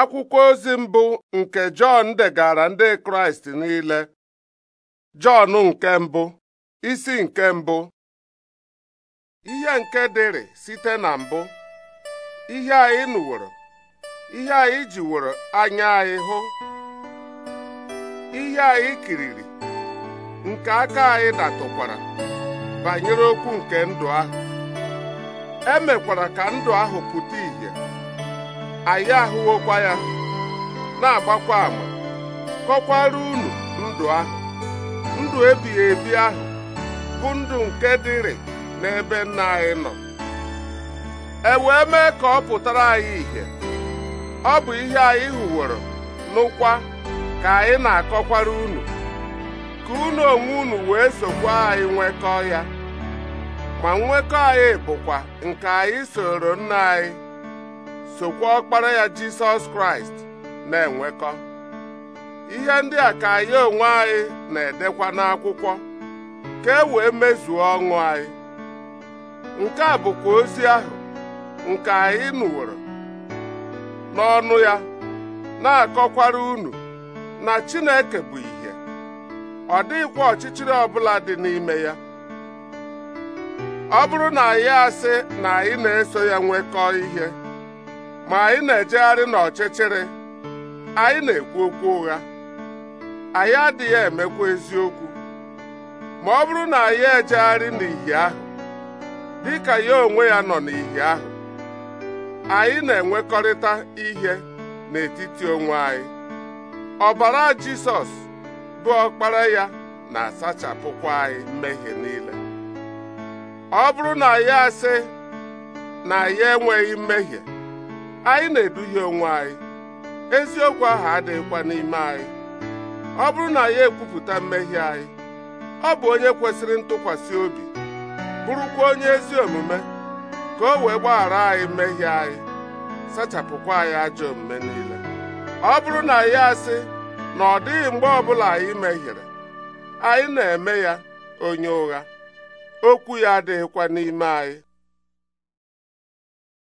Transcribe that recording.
akwụkwọ ozi mbụ nke Jọn degara ndị Kraịst niile Jọn nke mbụ isi nke mbụ ihe nke dịrị site na mbụ ihe anyị nụworo ihe anyị jiworo anya anyị hụ ihe anyị kiriri nke aka anyị datụkwara banyere okwu nke ndụ ahụ emekwara ka ndụ ahụ pụta ìhè anyị ahụwokwa ya na-agbakwa ama kọkwara unu ndụ ahụ ndụ ebighị ebi ahụ bụ ndụ nke dịrị n'ebe nna anyị nọ e wee mee ka ọ pụtara anyị ihe ọ bụ ihe anyị hụworo n'ụkwa ka anyị na-akọkwara unu ka unu onwe unu wee sokwa anyị nwekọọ ya ma nwekọ anyị bụkwa nke anyị soro nna anyị sokwa ọkpara ya jisọs kraịst na-enwekọ ihe ndị a ka anyị onwe anyị na-edekwa n'akwụkwọ ka e wee mezuo ọṅụ anyị nke a bụkwa ozi ahụ nke anyị nụworo n'ọnụ ya na-akọkwara unu na Chineke bụ ihe ọ dịghịkwa ọchịchịrị ọbụla dị n'ime ya ọ bụrụ na anyị asị na anyị na-eso ya nwekọ ihe ma anyị na-ejegharị n'ọchịchịrị anyị na-ekwu okwu ụgha anyị adịghị emekwa eziokwu ma ọ bụrụ na anyị ejegharị n'ìhè ahụ dị ka ya onwe ya nọ n'ìhè ahụ anyị na-enwekọrịta ihe n'etiti onwe anyị ọbara Jisọs bụ ọkpara ya na-asachapụkwa anyị mmehie niile ọ bụrụ na ya asị na ya enweghị mmehie anyị na-eduhie onwe anyị eziokwu ahụ adịghịkwa n'ime anyị ọ bụrụ na ya ekwupụta mmehie anyị ọ bụ onye kwesịrị ntụkwasị obi bụrụkwa onye ezi omume ka o wee gbaghara anyị mmehie anyị sachapụkwa anyị ajọ omume niile ọ bụrụ na ya asị na ọ dịghị mgbe ọbụla anyị mehiere anyị na-eme ya onye ụgha okwu ya adịghịkwa n'ime anyị